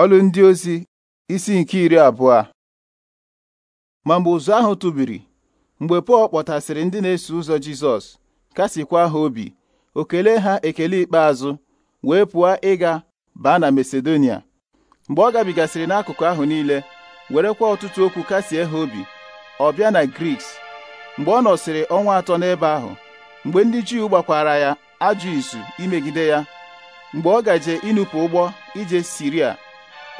Ọlụ ndị ozi isi nke iri abụọ ma mgbe ụzụ ahụ tụbiri mgbe Pọl kpọtasịrị ndị na-eso ụzọ Jizọs kasịkwa ha obi o kelee ha ekele ikpeazụ wee pụọ ịga baa na Masedonia mgbe ọ gabigasịrị n'akụkụ ahụ niile werekwa ọtụtụ okwu kasie ha obi ọ bịa na Griks mgbe ọ nọsịrị ọnwa atọ n'ebe ahụ mgbe ndị Juu gbakwara ya ajụ izu imegide ya mgbe ọ gaje ịnụpụ ụgbọ ije Siria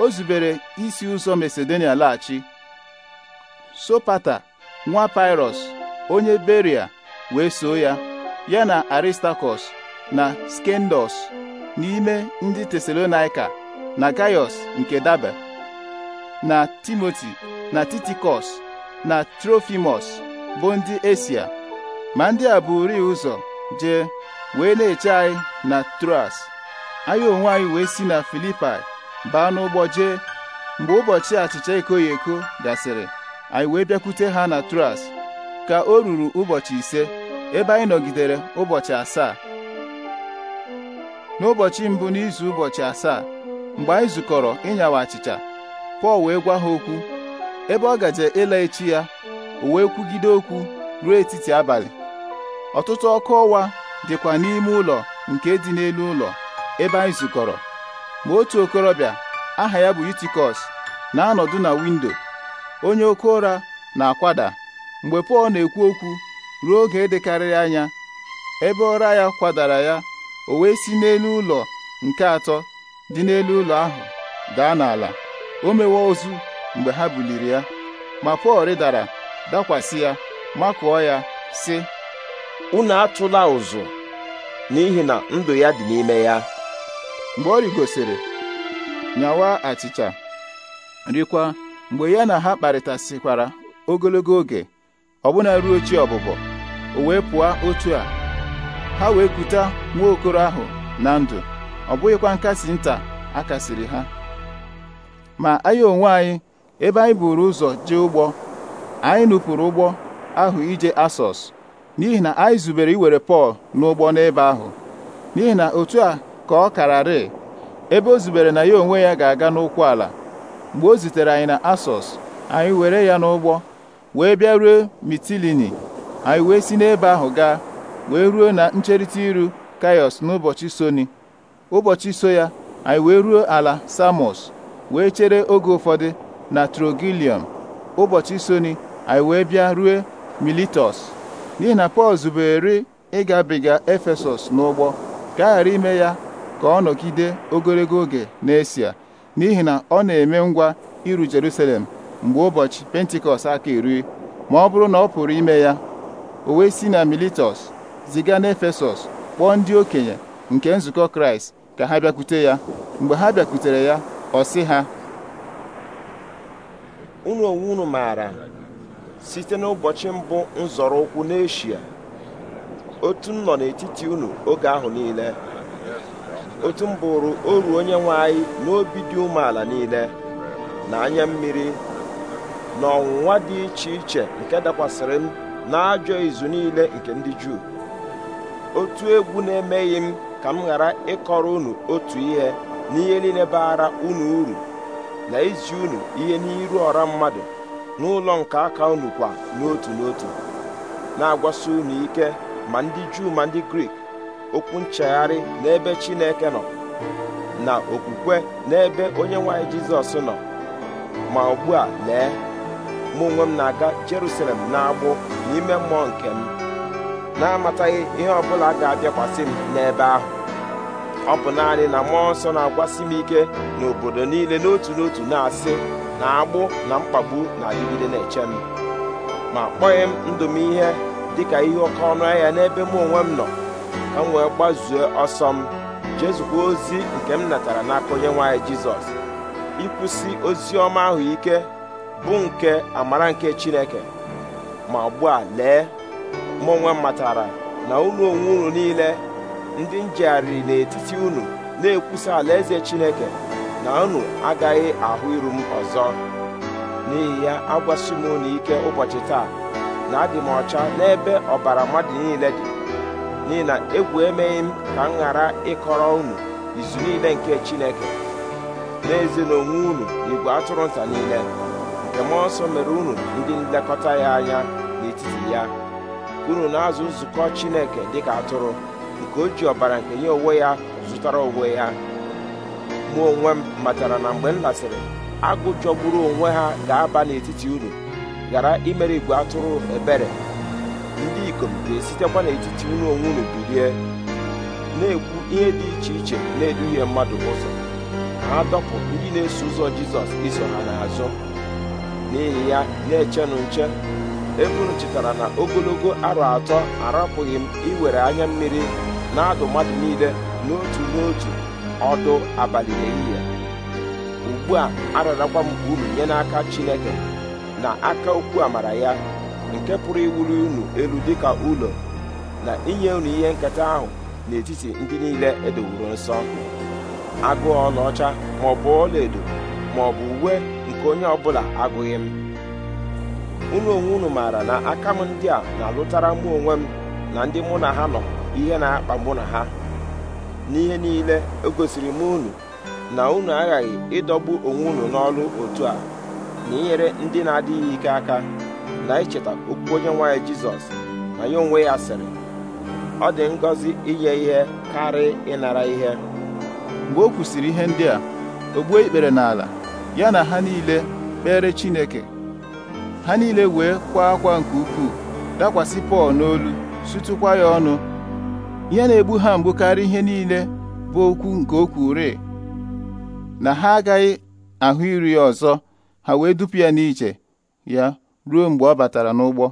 o zubere isi ụzọ Masedonia laghachi Sopata nwa Pyrrhus onye Beria wee soo ya ya na Aristakọs na Skendos n'ime ndị Tesalonaika na Gaius nke Dabe na Timoti na Titikọs na Trofimus bụ ndị Esia ma ndị a bụ rịị ụzọ jee wee na-eche anyị na Troas anyị onwe anyị wee si na Filipai baa n'ụgbọ jee mgbe ụbọchị achịcha ekoghị eko gasịrị anyị wee bịakwute ha na Tras ka o ruru ụbọchị ise ebe anyị nọgidere ụbọchị asaa n'ụbọchị mbụ n'izu ụbọchị asaa mgbe anyị zukọrọ ịnyawa achịcha Pọl wee gwa ha okwu ebe ọ gaje ịla echi ya o wee kwugide okwu ruo etiti abalị ọtụtụ ọkụ ọwa dịkwa n'ime ụlọ nke dị n'elu ụlọ ebe anyị zukọrọ ma otu okorobịa aha ya bụ utikọs na-anọdụ na windo onye oke ụra na-akwada mgbe Pọl na-ekwu okwu ruo oge dịkarịrị anya ebe ụra ya kwadara ya o wee si n'elu ụlọ nke atọ dị n'elu ụlọ ahụ daa n'ala o mewe ozu mgbe ha buliri ya ma Pọl rịdara dakwasị ya makụọ ya sị unu atụla ụzụ n'ihi na ndụ ya dị n'ime ya mgbe ọ rigosiri nyawa achịcha rikwa mgbe ya na ha kparịtasịkwara ogologo oge ọbụna ruo chi ọbụbọ o wee pụọ otu a ha wee kuta nwa okoro ahụ na ndụ ọ bụghịkwa nkasi nta akasiri ha ma anyị onwe anyị ebe anyị buru ụzọ jee ụgbọ anyị nupụrụ ụgbọ ahụ ije asọs n'ihi na anyị zubere iwere Pọl n'ụgbọ n'ebe ahụ n'ihi na otu a ka ọ kararị ebe o zubere na ya onwe ya ga-aga n'ụkwụ ala mgbe o zitere anyị na asọs anyị were ya n'ụgbọ wee bịa ruo mitilini anyị wee si n'ebe ahụ gaa wee ruo na ncherịta iru kaios n'ụbọchị soni ụbọchị so ya anyị wee ruo ala samos wee chere oge ụfọdụ na trogilium ụbọchị soni anyị wee bịa ruo militos n'ihi na pọl zubere ịgabiga efesọs n'ụgbọ ka a ghara ime ya ka ọ nọgide ogologo oge n'Esia n'ihi na ọ na-eme ngwa iru Jerusalem mgbe ụbọchị Pentikọst aka erue ma ọ bụrụ na ọ pụrụ ime ya o wee si na Miletus ziga efesos kpọọ ndị okenye nke nzukọ Kraịst ka ha bịakwute ya mgbe ha bịakwutere ya ọ sị ha unu onwe unu maara site n'ụbọchị mbụ nzọrọ ụkwụ n'eshia otu m nọ n'etiti unu oge ahụ niile otu m bụrụ oru onye nwe anyị n'obi dị umeala niile na anya mmiri na ọnwụnwa dị iche iche nke dakwasịrị m na ajọ izu niile nke ndị Juu otu egwu na-emeghị m ka m ghara ịkọrọ unu otu ihe n'ihe niile baara unu uru na izi unu ihe n'iru ọra mmadụ n'ụlọ nke aka unu kwa n'otu n'otu na-agwasi unu ike ma ndị Juu ma ndị Grik okwu nchegharị n'ebe Chineke nọ na okwukwe n'ebe onye nwanyị Jizọs nọ ma ugbu a lee mụ onwe m na-aga Jerusalem na-agbụ n'ime mmụọ nke m na-amataghị ihe ọbụla ga-abịakwasị m n'ebe ahụ ọ bụ naanị na mmụọ nsọ na-agwasị m ike n'obodo niile n'otu n'otu na-asị na agbụ na mkpagbu na-adịgide na-eche m ma kpọghị m ndụ m ihe dịka ihe ọkọ ọnụ ahịa n'ebe mụ onwe m nọ ka m wee gbazue ọsọ m jezukwa ozi nke m natara n'aka onye nwaanyị jizọs ịkwụsị ozi ọma ahụ ike bụ nke amara nke chineke ma ugbu a lee mụ onwe m matara na unu onwe unu niile ndị njegharịrị n'etiti unu na-ekwusa alaeze chineke na unu agaghị ahụ iru m ọzọ n'ihi ya agwasi m unu ike ụbọchị taa na adị m ọcha n'ebe ọbara mmadụ niile dị n'ihi na egwu emeghị m ka m ghara ịkọrọ unu izu niile nke chineke n'ezie na onwe unu igwe atụrụ nta niile nke mmụọ nsọ mere unu ndị nlekọta ya anya n'etiti ya unu na-azụ nzukọ chineke dịka atụrụ nke o ji ọbara nke nye onwe ya zụtara onwe ya mụ onwe m matara na mgbe m lasịrị agụ jọgburu onwe ha ga-aba n'etiti unu ghara imere igwe atụrụ ebere ndị ikom ga-esitekwa n'etiti unu onwe unu bilie na-ekwu ihe dị iche iche na-eduhie mmadụ ụzọ ha dọpụ ndị na-eso ụzọ Jizọs iso ha n'azụ n'ihi ya na-echenụ nche ebe unu chetara na ogologo arọ atọ arapụghị m iwere anya mmiri na-adụ mmadụ niile n'otu n'otu ọdụ abalị ehihie ugbu a ararakwa m unu nye n'aka Chineke na aka okwu amara ya nke pụrụ iwuru unu elu dịka ụlọ na inye unu ihe nketa ahụ n'etiti ndị niile edowuru nsọ agụụ ọlaọcha maọbụ ọlaedo maọbụ uwe nke onye ọbụla agụghị m unu onwe unu maara na aka m ndị a na-alụtara mụ onwe m na ndị mụ na ha nọ ihe na-akpa mụ na ha n'ihe niile egosiri m unu na unu aghaghị ịdọgbu onwe unu n'ọrụ otu a na inyere ndị na-adịghị ike aka na icheta okwu onye nwaanyị jizọs na ya onwe ya sịrị ọ dị ngọzi inye ihe karị ịnara ihe mgbe o kwusịrị ihe ndị a o gbuo ikpere n'ala ya na ha niile kpere chineke ha niile wee kwa akwa nke ukwuu dakwasị pọl n'olu sụtụkwa ya ọnụ ihe na-egbu ha mgbu karịa ihe niile bụ okwu nke o kwuru na ha agaghị ahụ iru ya ọzọ ha wee dupu ya n'iche ya ruo mgbe ọ batara n'ụgbọ